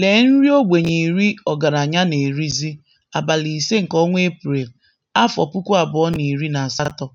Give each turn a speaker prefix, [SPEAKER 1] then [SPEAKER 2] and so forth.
[SPEAKER 1] Lee nri ogbenye iri ọgaranya na-erizi abalị ise nke ọnwa Eprel, afọ puku abụọ na iri na asatọ.